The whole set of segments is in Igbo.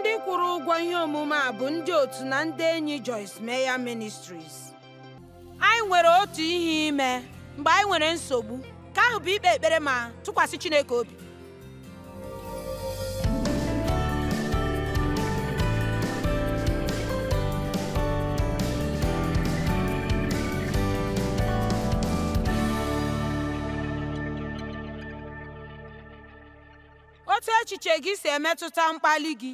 ndị kwụrụ ụgwọ ihe omume a bụ ndị otu na ndị enyi Joyce meya ministris. anyị nwere otu ihe ime mgbe anyị nwere nsogbu ka ahụ bụ ikpe ekpere ma tụkwasị Chineke obi otu echiche gị si emetụta mkpali gị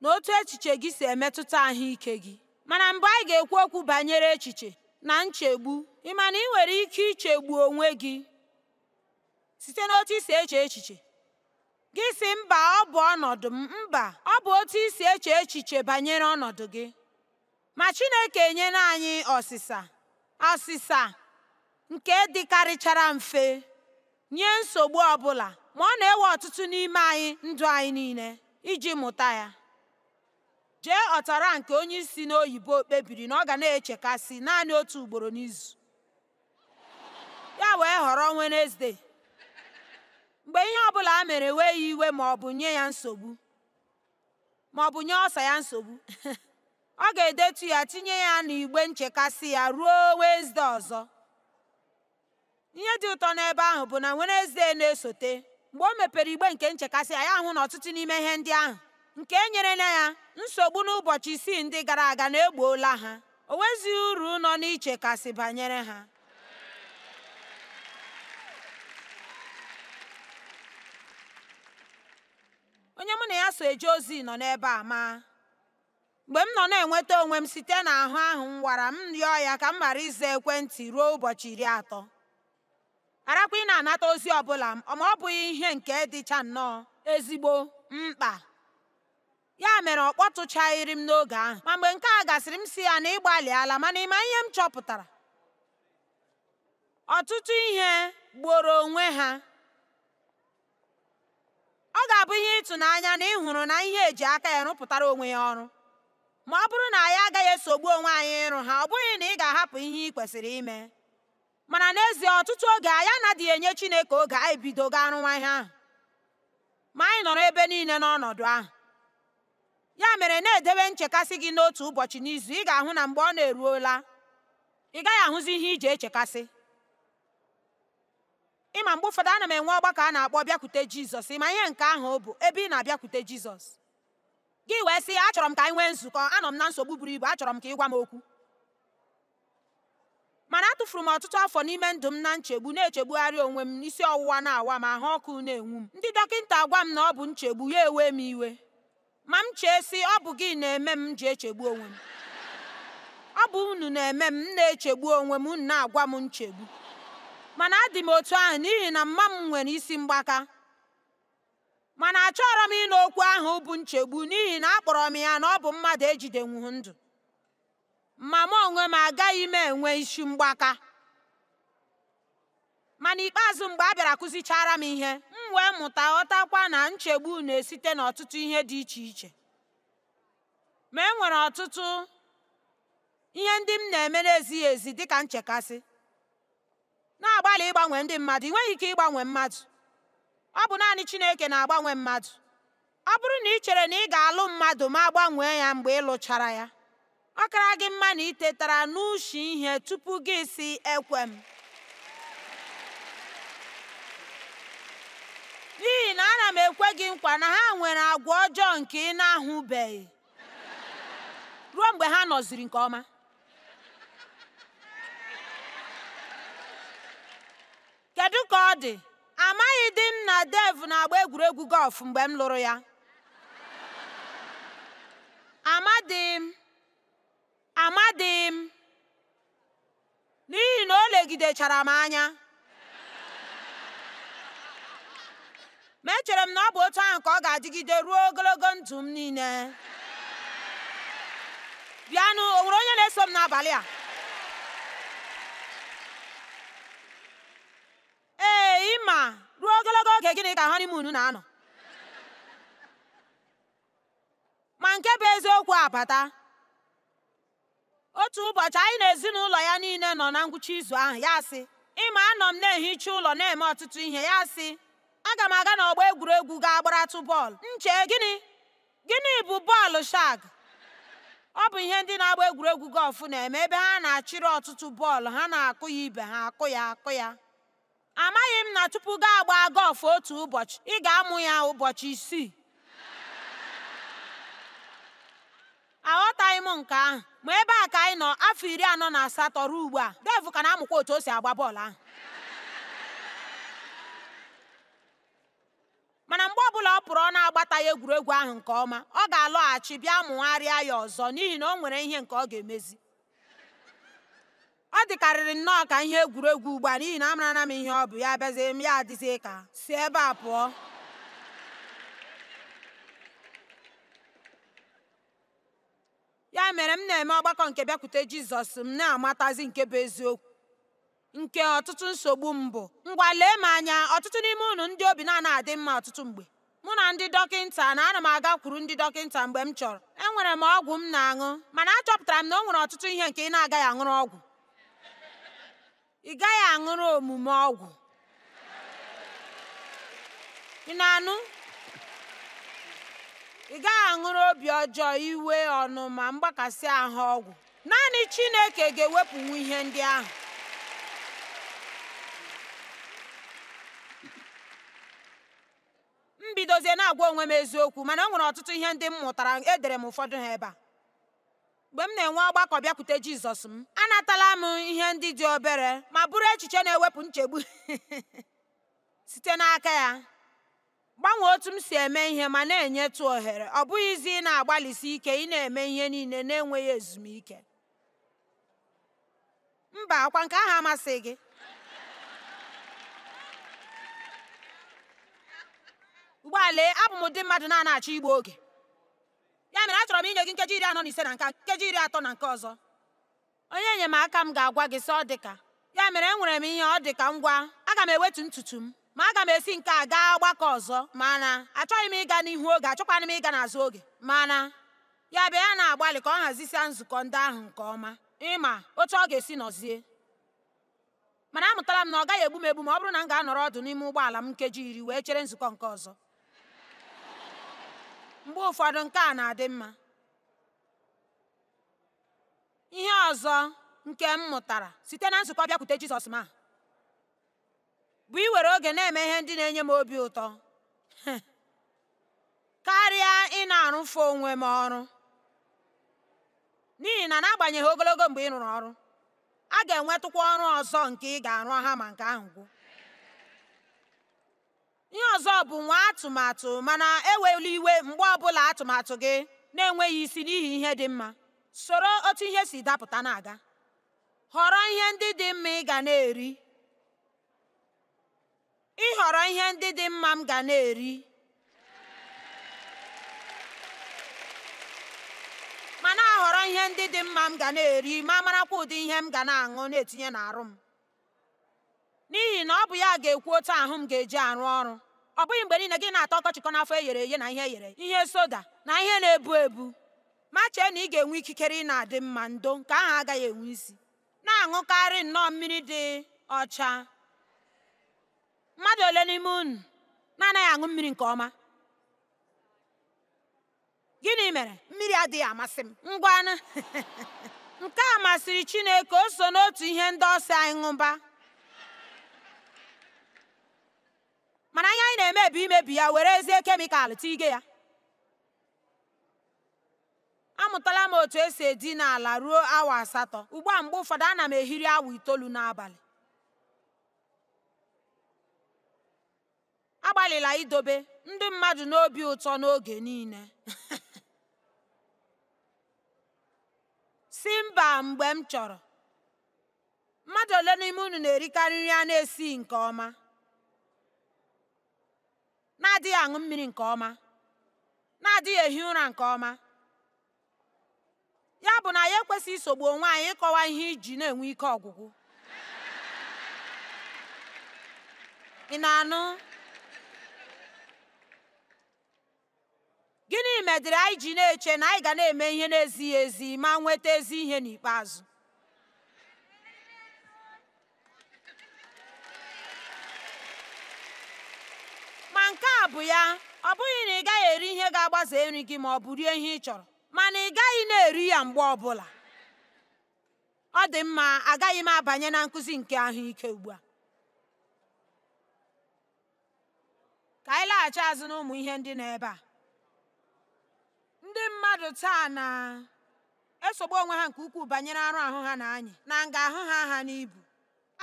na otu echiche gị si emetụta ahụike gị mana mgbe anyị ga-ekwu okwu banyere echiche na nchegbu ị ma na ị nwere ike ichegbu onwe gị site n'otu isi eche echiche gị si mba ọ bụ ọnọdụ m mba ọ bụ otu isi eche echiche banyere ọnọdụ gị ma Chineke enyela anyị ọsịsa ọsịsa nke dịkarịchara mfe nye nsogbu ọbụla ma ọ na-ewe ọtụtụ n'ime anyị ndụ anyị niile iji mụta ya jee ọtara nke onye isi n'oyibo kpebiri na ọ ga na-echekasị naanị otu ugboro n'izu ya wee họrọ Wenezdee mgbe ihe ọbụla a mere wee ya iwe ma ọ bụ nye ya nsogbu ọ nye ọsa ya nsogbu ọ ga-edetu ya tinye ya n'igbe nchekasị ya ruo Wenezdee ọzọ ihe dị ụtọ n'ebe ahụ bụ na Wenezdee na-esote mgbe o mepere igbe nke nchekasị ya ya hụ na ọtụtụ n'ime ihe ndị ahụ nke e na ya nsogbu n'ụbọchị isii ndị gara aga na-egbuola ha o nwezighị uru nọ n'iche kasị banyere ha onye mụ na ya so eje ozi nọ n'ebe a ma mgbe m nọ na-enweta onwe m site n'ahụ ahụ m wara m rịọ ya ka m ghara ize ekwentị ruo ụbọchị iri atọ arakwa ị na-anata ozi ọbụla ma ọ bụghị ihe nke dịcha nnọọ ezigbo mkpa ya mere ọ kpọtụchaghịrị m n'oge ahụ ma mgbe nke a gasịrị m si ya na ịgbalịala mana ịma ihe m chọpụtara ọtụtụ ihe gboro onwe ha ọ ga-abụ ihe ịtụnanya na ị hụrụ na ihe eji aka ya rụpụtara onwe ya ọrụ ma ọ bụrụ na anyị agaghị esogbu onwe anyị ịrụ ha ọ bụghị na ị ga-ahapụ ihe ị kwesịrị ime mana n'ezie ọtụtụ oge anyị anaghị enye Chineke oge anyị bido ga arụwa ihe ahụ ma anyị nọrọ ebe niile n'ọnọdụ ahụ Ya mere na-edebe nchekasị gị n'otu ụbọchị n'izu ị ga-ahụ na mgbe ọ na-eruola ị gaghị ahụzi ihe iji echekasị. Ịma mgbe ụfọdụ ana m enwe ọgbakọ a na-akpọ bịakwute Jizọs ịma ihe nke ahụ bụ ebe ị na-abịakwute Jizọs. Gị wee sị achọrọ m ka anyị nwee nzukọ anọ m na nsogbu buru ibu achọrọ m ka ị gwa m okwu. Mana atụfuru m ọtụtụ afọ n'ime ndụ m na nchegbu na-echegbugharị onwe m isi ọwụwa na-awa m ahụ ọkụ na-enwu m ndị dọkịta gwa m na ọ bụ nchegbu ya ewe m iwe ma m chee sị ọ bụ gị na-eme m ji echegbu onwe m ọ bụ unu na-eme m na-echegbu onwe m unu na-agwa m nchegbu mana adị m otu ahụ n'ihi na mma m nwere isi mgbaka mana achọrọ m ịnọ okwu ahụ bụ nchegbu n'ihi na akpọrọ m ya na ọ bụ mmadụ ejidenwu ndụ ma m onwe m agaghị m enwe isi mgbaka ma n'ikpeazụ mgbe a bịara kụzichara m ihe m wee mụta ghọtakwa na nchegbu na-esite n'ọtụtụ ihe dị iche iche ma e nwere ọtụtụ ihe ndị m na-eme na-ezighị ezi dịka nchekasị na-agbalị ịgbanwe ndị mmadụ ị nweghị ike ịgbanwe mmadụ ọ bụ naanị Chineke na-agbanwe mmadụ ọ bụrụ na ị chere na ị ga-alụ mmadụ ma gbanwee ya mgbe ị lụchara ya ọ kara gị mma na ị tetara n'ushi ihe tupu gị si ekwe m ana m ekwe gị nkwa na ha nwere agwa ọjọọ nke ị na-ahụbeghị ruo mgbe ha nọziri nke ọma kedu ka ọ dị amaghị di m na dev na-agba egwuregwu gọlf mgbe m lụrụ ya amadịm m n'ihi na o legidechara m anya ma echere m na ọ bụ otu ahụ ka ọ ga-adịgide ruo ogologo ndụ m niile bịanụ o nwere onye na-eso m n'abalị a ee ịma ruo ogologo oge gịnị ka honeymoon na-anọ ma nke bụ eziokwu abata otu ụbọchị anyị na ezinụlọ ya niile nọ na ngwụcha izu ahụ ya sị ịma anọ m na-ehicha ụlọ na-eme ọtụtụ ihe ya sị Aga m aga n'ọgbọ egwuregwu ga gbaratụ bọọlụ. nche gịnị? Gịnị bụ bọọlụ shag? Ọ bụ ihe ndị na-agba egwuregwu gọlfụ na-eme ebe ha na-achịrị ọtụtụ bọọlụ ha na-akụ ya ibe ha akụ ya akụ ya. Amaghị m na tupu gị agbaa gọlfụ otu ụbọchị, ị ga-amụ ya ụbọchị isii. Aghọtaghị m nke ahụ ma ebe a ka anyị nọ afọ iri anọ na asatọ ruo ugbu a, Dev ka na-amụkwa otu o si agba bọọlụ ahụ. mana mgbe ọbụla ọ pụrụ ọ na-agbata ya egwuregwu ahụ nke ọma ọ ga-alọghachi bịa mụgharịa ya ọzọ n'ihi na o nwere ihe nke ọ ga-emezi ọ dịkarịrị nnọọ ka ihe egwuregwu ugbu a n'ihi na amarana m ihe ọ bụ ya bịazie ya ka si ebe a pụọ ya mere m na-eme ọgbakọ nke bịakwute jizọs m na-amatazi nke bụ eziokwu nke ọtụtụ nsogbu m bụ ngwa lee m anya ọtụtụ n'ime unu ndị obi na adị mma ọtụtụ mgbe mụ na ndị dọkịnta na ana m agakwuru ndị dọkịnta mgbe m chọrọ enwere m ọgwụ m na-aṅụ mana achọpụtara m na o nwere ọtụtụ ihe nke ị na-agaghị aṅụrụ ọgwụ ị gaghị aṅụrụ omume ọgwụ ị na-anụ ị gaghị aṅụrụ obi ọjọọ iwe ọnụ ma mgbakasị ahụ ọgwụ naanị Chineke ga-ewepụnwu ihe ndị ahụ na-agwa onwe m eziokwu mana o nwere ọtụtụ ihe ndị m mụtara edere m ụfọdụ ha ebe a mgbe m na-enwe ọgbakọ bịakwute jizọs m anatala m ihe ndị dị obere ma bụrụ echiche na-ewepụ nchegbu site n'aka ya gbanwee otu m si eme ihe ma na-enyetụ ohere ọ bụghịzi ị na-agbalịsi ike ị na-eme ihe niile na-enweghị ezumike mba ọkwa nke ahụ amasị gị ugbua abụ m ụdị mmadụ na-anaghachọ igbu oge ya mere achọrọ m inye gị nkeji iri anọ na ise na nka nkeji iri atọ na nke ọzọ onye enyemaka m ga-agwa gị sị ọ dị ka ya mere enwere m ihe ọ dị ka ngwa aga m ewetu ntutu m ma aga m esi nke a gaa ọgbakọ ọzọ mana achọghị m ịga n'ihu oge achọkwana m ịga n'azụ oge mana ya bịa ya na-agbalị ka ọ hazisia nzukọ ndị ahụ nke ọma ịma otu ọ ga-esi nọzie mana amụtala m na ọ gaghị egbu m egbu ma ọ bụrụ na m ga-anọrọ ọdụ n'ime ụgbọala m nkeji iri wee chere nzukọ nke ọzọ mgbe ụfọdụ nke a na-adị mma ihe ọzọ nke m mụtara site na nzukọ bịakwute jizọs ma bụ iwere oge na-eme ihe ndị na-enye m obi ụtọ karịa ị na-arụfe onwe m ọrụ n'ihi na n'agbanyeghị ogologo mgbe ị rụrụ ọrụ a ga-enwetụkwa ọrụ ọzọ nke ị ga-arụ ha ma nke ahụ gwụ ihe ọzọ bụ nwa atụmatụ mana ewela iwe mgbe ọbụla atụmatụ gị na-enweghị isi n'ihi ihe dị mma soro otu ihe si dapụta na-aga họrọ ihe ndị dị mma ị ga na-eri ịhọrọ ihe ndị dị mma m ga na-eri ma na-ahọrọ ihe ndị dị mma m ga na-eri ma marakwa ụdị ihe m ga na-aṅụ na-etinye n'arụ m n'ihi na ọ bụ ya ga-ekwu otu ahụ m ga-eji arụ ọrụ ọ bụghị mgbe niile gị na-atọ ọkọchịkọ n'afọ e ghere eghe na ihe eghere ihe soda na ihe na-ebu ebu ma chee na ị ga-enwe ikikere ị na-adị mma ndo nke ahụ agaghị enwe isi na-aṅụkarị nnọọ mmiri dị ọcha mmadụ ole n'ime unu na-anaghị aṅụ mmiri nke ọma gịnị mere mmiri adịghị amasị m ngwanụ nke a masịrị Chineke o so n'otu ihe ndị ọsọ anyị ṅụba mana anya anyị na-emebi imebi ya were ezie kemikal tige ya amụtala m otu esi edi n'ala ruo awa asatọ ugbu a mgbe ụfọdụ ana m ehiri awa itoolu n'abalị agbalịla idobe ndị mmadụ n'obi ụtọ n'oge niile si mba mgbe m chọrọ mmadụ ole n'ime unu na-erikarị nri a na-esi nke ọma na-adịghị aṅụ mmiri nke ọma na-adịghị ehi ụra nke ọma ya bụ na ya ekwesịghị isogbu onwe anyị ịkọwa ihe iji na-enwe ike ọgwụgwụ ị na-anụ gịnị medịrị anyị ji na-eche na anyị ga na-eme ihe na-ezighị ezi ma nweta ezi ihe n'ikpeazụ nke a bụ ya ọ bụghị na ị gaghị eri ihe ga-agbaze nri gị ma ọ bụ rie ihe ị chọrọ mana ị gaghị na-eri ya mgbe ọbụla ọ dị mma agaghị m abanye na nkụzi nke ahụike ugbu a ka anyị laghachi azụ n'ụmụ ihe ndị nọ ebe a ndị mmadụ taa na-esogbu onwe ha nke ukwuu banyere arụ ahụ ha na anyị na nga ahụ ha ha n'ibu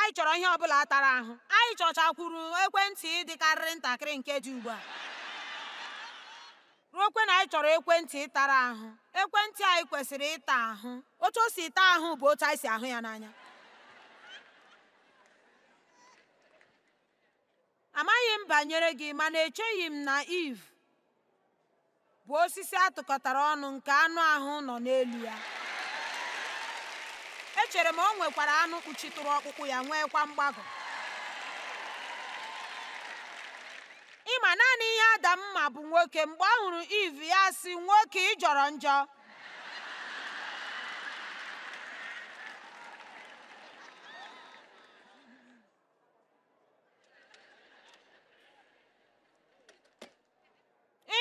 anyị chọrọ ihe ọbụla tara ahụ anyị chọchakwuru ekwentị dịkarịrị ntakịrị nke dị ugbu a ruokwe na anyị chọrọ ekwentị tara ahụ ekwentị anyị kwesịrị ịta ahụ otu o si taa ahụ bụ otu anyị si ahụ ya n'anya amaghị m banyere gị mana echeghị m na iv bụ osisi atụkọtara ọnụ nke anụ ahụ nọ n'elu ya echere m o nwekwara anụ kpuchitụrụ ọkpụkpụ ya nwekwa mgbagọ ịma naanị ihe adam ma bụ nwoke mgbe ọ hụrụ iv ya si nwoke ị jọrọ njọ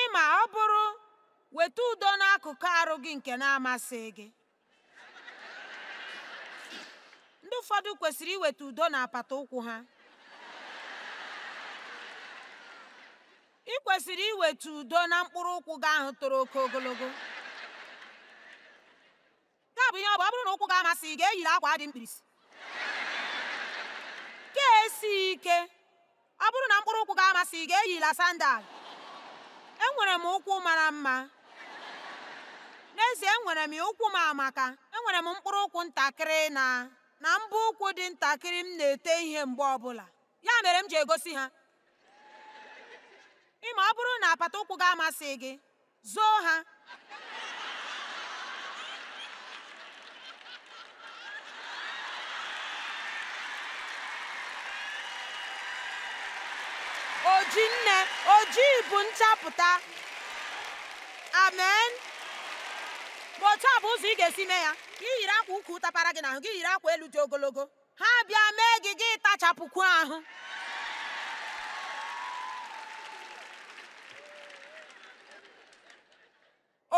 ịma ọ bụrụ weta udo n'akụkụ arụ gị nke na-amasị gị ụfọdụ kwesịrị iweta udo n'apata ụkwụ ha ị kwesịrị iweta udo na mkpụrụ ụkwụ gị ahụ toro oke ogologo nke bụ ihe ọ bụ ọ bụrụ na ụkwụ gị amasị ị ga-eyiri akwa dị mkpirisi ka esi ike ọ bụrụ na mkpụrụ ụkwụ gị amasị ị ga-eyila sandal enwere m ụkwụ mara mma n'ezie enwere m ụkwụ m amaka enwere m mkpụrụ ụkwụ ntakịrị na na mbọ ụkwụ dị ntakịrị m na-ete ihe mgbe ọbụla ya mere m ji egosi ha ma ọ bụrụ na apata ụkwụ gị amasị gị zoo ha ojinne ojii bụ nchapụta amen bụ otu a bụ ụzọ ị ga-esi mee ya gị yiri akwa ukwu tapara gị n'ahụ gị yiri akwa elu dị ogologo ha bịa mee gị gị tachapụkwu ahụ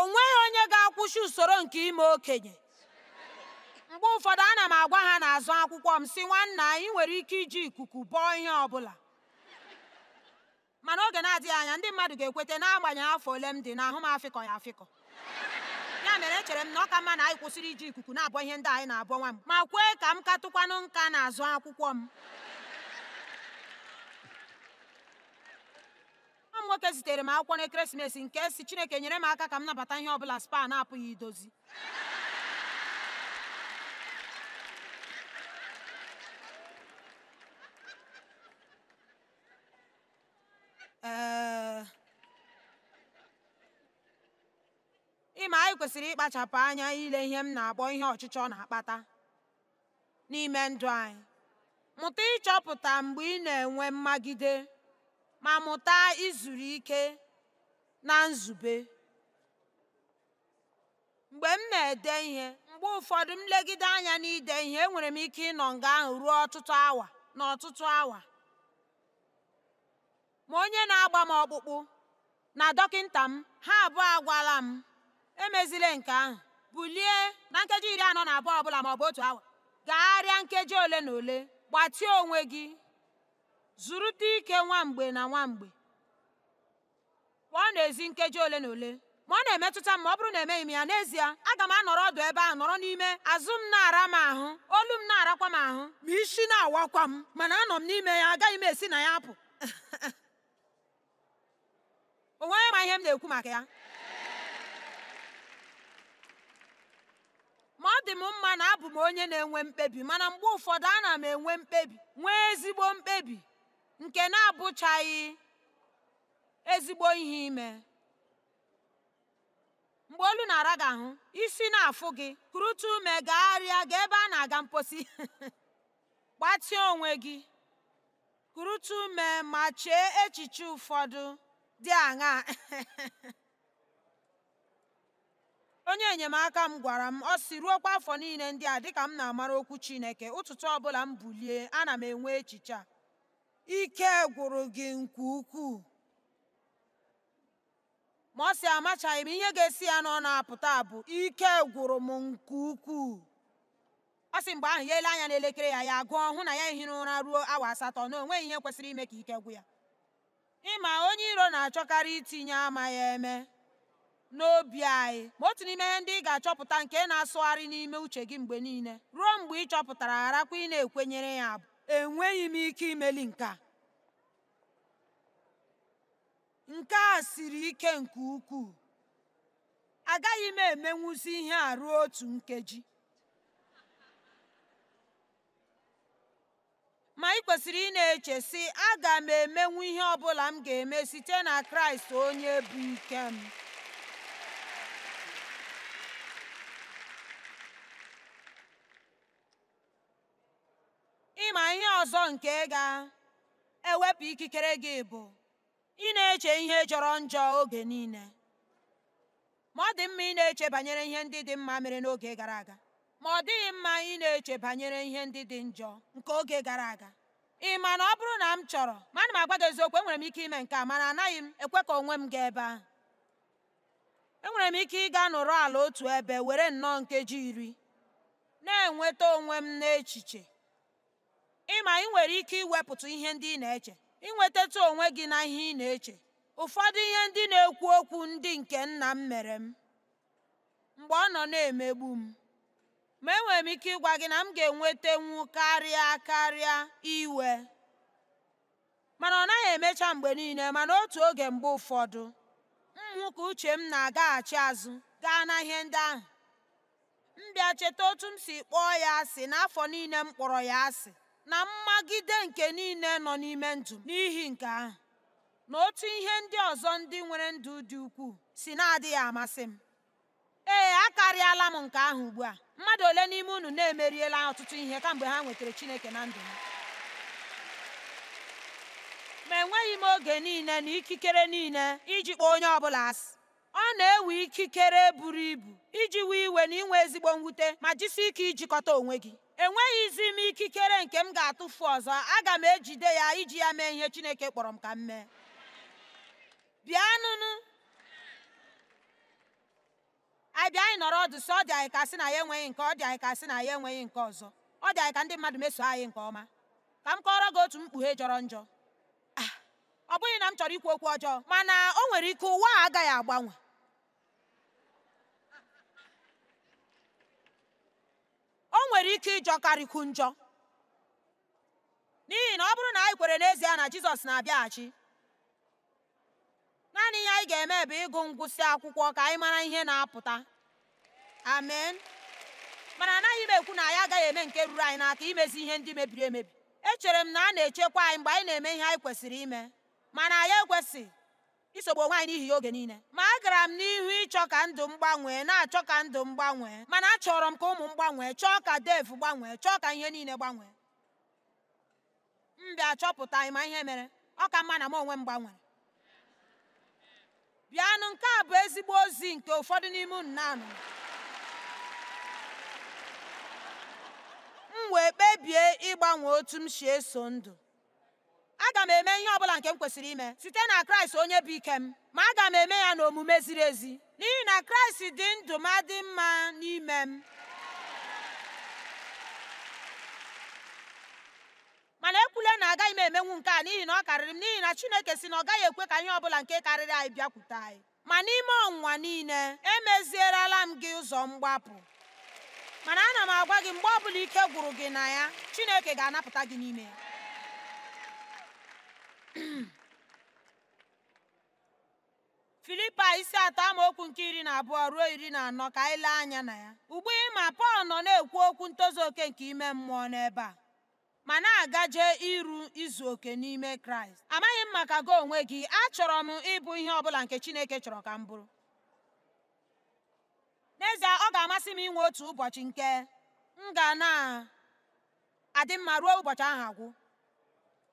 o nweghị onye ga-akwụsị usoro nke ime okenye mgbe ụfọdụ ana m agwa ha n'azụ akwụkwọ m si nwanna anyị nwere ike iji ikuku bọọ ihe ọbụla, mana oge na-adịghị anya ndị mmadụ ga-ekweta n'agbanyeghị afọ ole m dị nahụ m afịkọ ya afịkọ ya mere echere m na ọ ka mma na anyị kwụsịrị iji ikuku na-abọ ihe ndị anyị na-abọ nwa m ma kwee ka m katụkwanụ nka na-azụ akwụkwọ m nwa m nwoke zitere m akwụkwọ n'ekeresimesi nke si Chineke nyere m aka ka m nabata ihe ọ bụla spa na-apụghị idozi kwesịrị ịkpachapụ anya ile ihe m na-akpọ ihe ọchịchọ na-akpata n'ime ndụ anyị mụta ịchọpụta mgbe ị na-enwe mmagide ma mụta izuru ike na nzube mgbe m na-ede ihe mgbe ụfọdụ m anya na n'ide ihe enwere m ike ịnọ nga ahụ ruo ọtụtụ awa na ọtụtụ awa ma onye na-agba m ọkpụkpụ na dọkịta m ha abụọ agwala m emezile nke ahụ bulie na nkeji iri anọ na abụọ ọbụla maọbụ otu awa gagharịa nkeji ole na ole gbatịa onwe gị zụrụta ike nwa mgbe na nwa ọ pụọ n'ezi nkeji ole na ole ma ọ na-emetụta m ma ọ bụrụ na emeghị m ya n'ezie aga m anọrọ ọdụ ebe ahụ nọrọ n'ime azụ m na-ara m ahụ olu m na-arakwa m ahụ ma isi na-awakwa m mana anọ m n'ime ya agaghị m esi na ya apụ o nweghị ma ihe m na-ekwu maka ya ma ọ dị m mma na abụ m onye na-enwe mkpebi mana mgbe ụfọdụ ana m enwe mkpebi nwee ezigbo mkpebi nke na-abụchaghị ezigbo ihe ime mgbe olu na-ara gị ahụ isi na-afụ gị kurutu ume gagharịa gaa ebe a na-aga mposi gbatịa onwe gị kurutu ume ma chee echiche ụfọdụ dị aṅaa onye enyemaka m gwara m, ọ sị, ruokwa afọ niile ndị a dịka m na-amara okwu Chineke, ụtụtụ ọbụla m bulie, ana m enwe echiche a, ike gwụrụ gị nke ukwuu. Ma ọ sị amachaghị m ihe ga-esi ya na ọ na-apụta bụ ike gwụrụ m nke ukwuu. Ọ sị mgbe ahụ ya ele anya n'elekere ya ya gụọ hụ na ya ehiri ụra ruo awa asatọ na o nweghị ihe kwesịrị ime ka ike gwụ ya. Ịma onye iro na-achọkarị itinye ama ya eme n'obi anyị ma otu n'ime ihe ndị ị ga-achọpụta nke na-asụgharị n'ime uche gị mgbe niile ruo mgbe ị chọpụtara gharakwa ị na-ekwenyere ya bụ enweghị m ike imeli nke nke a siri ike nke ukwuu agaghị m emenwuzi ihe a ruo otu nkeji ma ị kwesịrị ị na-eche sị aga m emenwu ihe ọ bụla m ga-eme site na kraịst onye bụ ike m ị ma ihe ọzọ nke ga-ewepụ ikikere gị bụ ị na-eche ihe jọrọ njọ oge niile ma ọ dị mma ị na-eche banyere ihe ndị dị mma mere n'oge gara aga ma ọ dịghị mma ị na-eche banyere ihe ndị dị njọ nke oge gara aga ị ma na ọ bụrụ na m chọrọ ma ana m agwa gị eziokwu enwere m ike ime nke a mana anaghị m ekwe ka onwe m gaa ebe ahụ enwere m ike ịga n'ụrọ ala otu ebe were nnọọ nkeji iri na-enweta onwe m n'echiche ịma ị nwere ike iwepụtụ ihe ndị ị na-eche inwetatụ onwe gị na ihe ị na-eche ụfọdụ ihe ndị na-ekwu okwu ndị nke nna m mere m mgbe ọ nọ na-emegbu m ma enwere m ike ịgwa gị na m ga-enwetenwu karịa karịa iwe mana ọ naghị emecha mgbe niile mana otu oge mgbe ụfọdụ m ka uche m na-agaghachi azụ gaa na ihe ndị ahụ m bịa cheta otu m si kpọọ ya asị n'afọ niile m kpọrọ ya asị na mmagide nke niile nọ n'ime ndụ n'ihi nke ahụ na otu ihe ndị ọzọ ndị nwere ndụ dị ukwuu si na-adịghị amasị m ee akarịala m nke ahụ ugbu a mmadụ ole n'ime unu na-emeriela ọtụtụ ihe kamgbe ha nwetara Chineke na ndụ ha ma enweghị m oge niile na ikikere niile iji kpọọ onye ọbụla asị ọ na-ewe ikikere buru ibu iji wee iwe na inwe ezigbo mwute ma jisi ike ijikọta onwe gị enweghịzi m ikikere nke m ga-atụfu ọzọ aga m ejide ya iji ya mee ihe Chineke kpọrọ m ka m mee bịanụnụ anyị bịa anyị nọrọ ọdụ sị ọ dị anyị ka sị na ya enweghị nke ọ dị anyị ka sị na ya enweghị nke ọzọ ọ dị anyị ka ndị mmadụ meso anyị nke ọma ka m kọọrọ gị otu mkpughe jọrọ njọ ah, ọ bụghị na m chọrọ ikwu okwu ọjọọ mana o nwere ike ụwa a agaghị agbanwe nwere ike ku njọ n'ihi na ọ bụrụ na anyị kwere n'ezie na Jizọs na-abịaghachi naanị ihe anyị ga-eme bụ ịgụ ngwụsị akwụkwọ ka anyị mara ihe na-apụta amen mana anaghị m ekwu na anyị agaghị eme nke ruru anyị n'aka imezi ihe ndị mebiri emebi echere m na a na-echekwa anyị mgbe anyị na-eme ihe anyị kwesịrị ime mana anyị ekwesị. isogbu onwe anyị n'ihi ya oge niile ma agara m n'ihu ịchọ ka ndụ m gbanwee na-achọ ka ndụ m gbanwee mana achọrọ m ka ụmụ m gbanwee chọọ ka Dave gbanwee chọọ ka ihe niile gbanwee mbịa bịa chọpụta ma ihe mere ọ ka mma na m onwe m gbanwere bịanụ nke a bụ ezigbo ozi nke ụfọdụ n'ime unu anụ m wee kpebie ịgbanwe otu m si eso ndụ aga m eme ihe ọ bụla nke m kwesịrị ime site na kraịst onye bụ ike m ma aga m eme ya n'omume ziri ezi n'ihi na kraịst dị ndụ ma dị mma n'ime m mana ekwule na agaghị m emenwu nke a n'ihi na ọ karịrị m n'ihi na chineke si na ọ gaghị ekwe ka ihe ọbụla nke karịrị anyị bịakwute anyị ma n'ime ọnwa niile emezierela m gị ụzọ mgbapụ mana ana m agwa gị mgbe ọ bụla ike gwụrụ gị na ya chineke ga-anapụta gị n'ime ya filipa isi atọ amaokwu nke iri na abụọ ruo iri na anọ ka anyị lee anya na ya. Ugbu ịma Pọl nọ na-ekwu okwu ntozu oke nke ime mmụọ n'ebe a ma na-agaje iru izu oke n'ime Kraịst. Amaghị m maka gị onwe gị, achọrọ m ịbụ ihe ọbụla nke Chineke chọrọ ka m bụrụ. N'ezie, ọ ga-amasị m inwe otu ụbọchị nke m ga na adị mma ruo ụbọchị ahụ agwụ.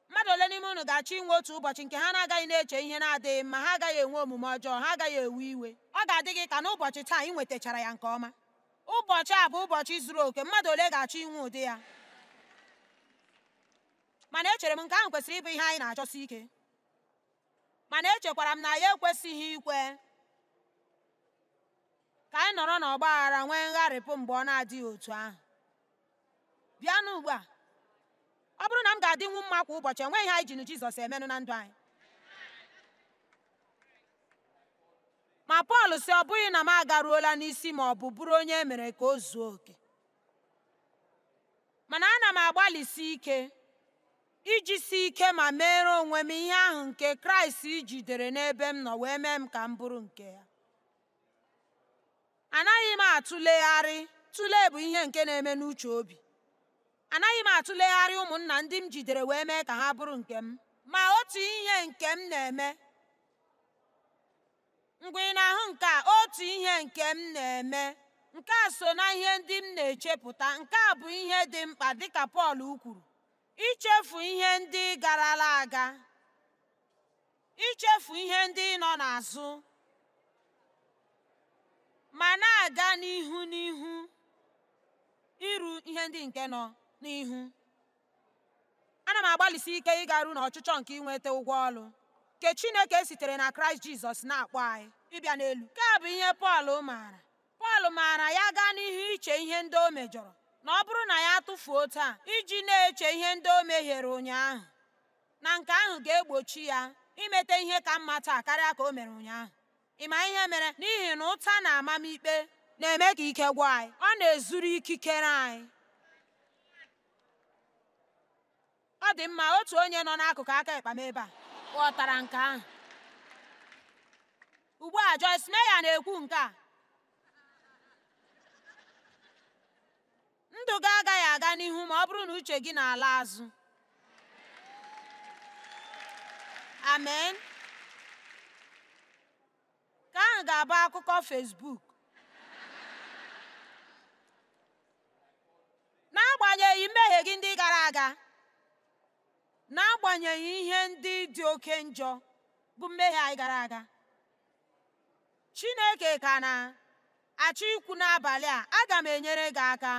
mmadụ ole n'ime unu ga-achọ inwe otu ụbọchị nke ha na-agaghị na-eche ihe na-adịghị mma ha agaghị enwe omume ọjọọ ha agaghị ewe iwe ọ ga-adị gị ka n'ụbọchị taa ị nwetachara ya nke ọma ụbọchị a bụ ụbọchị zuru oke mmadụ ole ga-achọ inwe ụdị ya mana echere m nke ahụ kwesịrị ịbụ ihe anyị na-achọsi ike mana echekwara m na ya ekwesịghị ikwe ka anyị nọrọ n'ọgba aghara nwee ngharịpụ mgbe ọ na-adịghị otu ahụ bịanụ ugbu a ọ bụrụ na m ga-adịnwu mma kwa ụbọchị enweghị nweghị anyị jizọs emenụ na ndụ anyị ma pọl si ọ bụghị na m agaruola n'isi ma ọ bụ bụrụ onye e mere ka o zuo oke mana ana m agbalịsi ike iji si ike ma mere onwe m ihe ahụ nke kraịst jidere n'ebe m nọ wee mee m ka m bụrụ nke ya anaghị m atụlegharị tụlee bụ ihe nke na-eme n'uche obi anaghị m atụlegharị ụmụnna ndị m jidere wee mee ka ha bụrụ nke m ma otu ihe nke m na-eme mgbe ị na-ahụ nke a otu ihe nke m na-eme nke a so na ihe ndị m na-echepụta nke a bụ ihe dị mkpa dịka Pọl kwuru ichefu ihe ndị garala aga ichefu ihe ndị nọ n'azụ ma na-aga n'ihu n'ihu iru ihe ndị nke nọ n'ihu ana m agbalịsi ike ịgaru n'ọchịchọ nke ịnweta ụgwọ ọlụ nke chineke sitere na kraịst jizọs na-akpọ anyị ịbịa n'elu nke bụ ihe pọl maara pọl maara ya gaa n'ihu iche ihe ndị o mejọrọ na ọ bụrụ na ya tụfuo taa iji na-eche ihe ndị o mehiere ụnyaahụ na nke ahụ ga-egbochi ya imeta ihe ka mma taa karịa ka o mere ụnyaahụ ị ma ihe mere n'ihi na ụta na amamikpe na-eme ka ike gwa anyị ọ na-ezuru ikikere anyị ọ dị mma otu onye nọ n'akụkụ aka ịkpa m ebe a ghọtara nke ahụ ugbu a Joyce Meyer na-ekwu nke a ndụ gị agaghị aga n'ihu ma ọ bụrụ na uche gị na-ala azụ amen ka ahụ ga-abụ akụkọ Facebook n'agbanyeghị mmehie gị ndị gara aga n'agbanyeghị ihe ndị dị oke njọ bụ mmehie anyị gara aga Chineke ka na-achọ ikwu n'abalị a aga m enyere gị aka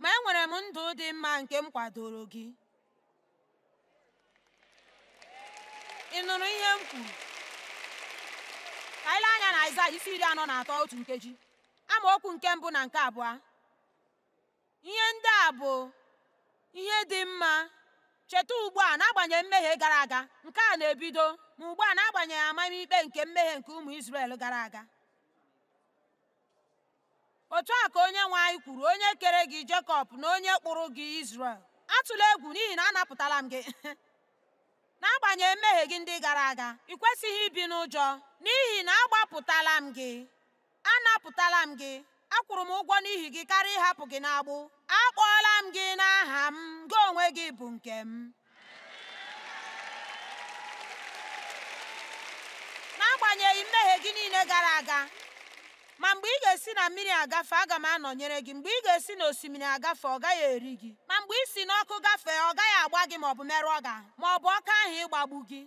ma enwere m ndụ dị mma nke m kwadoro gị ị nụrụ ihe m kwuru ka ile anya na Aịzaya isi iri anọ na atọ otu nkeji amaokwu nke mbụ na nke abụọ ihe ndị a bụ ihe dị mma Cheta ugbu a n'agbanyeghị mmehie gara aga, nke a na-ebido ma ugbu a n'agbanyeghị amamikpe nke mmehie nke ụmụ Izrel gara aga. Otu a ka onye anyị kwuru onye kere gị Jekọb na onye kpụrụ gị Izrel. Atụla egwu n'ihi na anapụtala m gị. N'agbanyeghị mmehie gị ndị gara aga, ị kwesịghị ibi n'ụjọ, n'ihi na agbapụtala m gị. Anapụtala m gị. akwụrụ m ụgwọ n'ihi gị karịa ịhapụ gị n'agbụ akpọọla m gị n'aha m gị onwe gị bụ nke m n'agbanyeghị mmehie gị niile gara aga ma mgbe ị ga-esi na mmiri agafe aga m anọnyere gị mgbe ị ga-esi n'osimiri agafe ọ gaghị eri gị ma mgbe i si n'ọkụ gafee ọ gaghị agba gị ma ọ bụ merụọ gị ma ọ bụ ọka ahụ ịgbagbu gị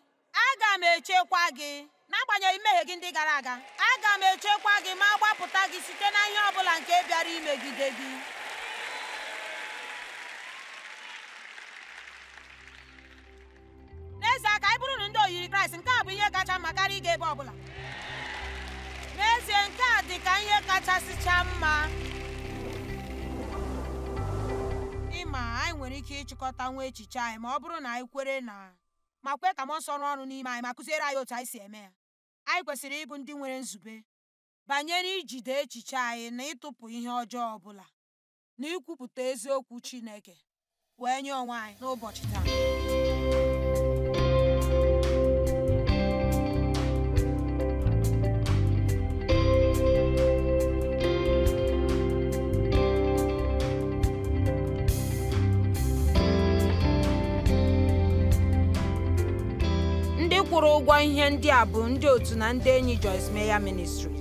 aga m echekwa gị n'agbanyeghị mmehie gị ndị gara aga aga m echekwa gị ma gbapụta gị site na ihe ọ bụla nke bịara imegide gị n'ezie aka anyị bụrụ na ndị oyiri kraịst nke a bụ ihe kacha mma karịa ịga ebe ọ bụla n'ezie nke a dị ka ihe chaa mma ịma anyị nwere ike ịchịkọta nwa echiche anyị ma ọ bụrụ na anyị kwere na ma kwee ka m nsọ ọrụ n'ime anyị ma kụziere anyị otu anyị si eme ya anyị kwesịrị ịbụ ndị nwere nzube banyere ijide echiche anyị na ịtụpụ ihe ọjọọ ọbụla na ikwupụta eziokwu Chineke wee nye onwe anyị n'ụbọchị taa kwụrụ ụgwọ ihe ndị a bụ ndị otu na ndị enyi Joyce meya ministri